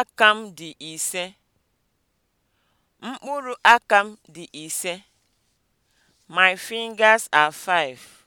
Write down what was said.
aka m dị ise. Mkpụrụ aka m dị ise. My fingers are five.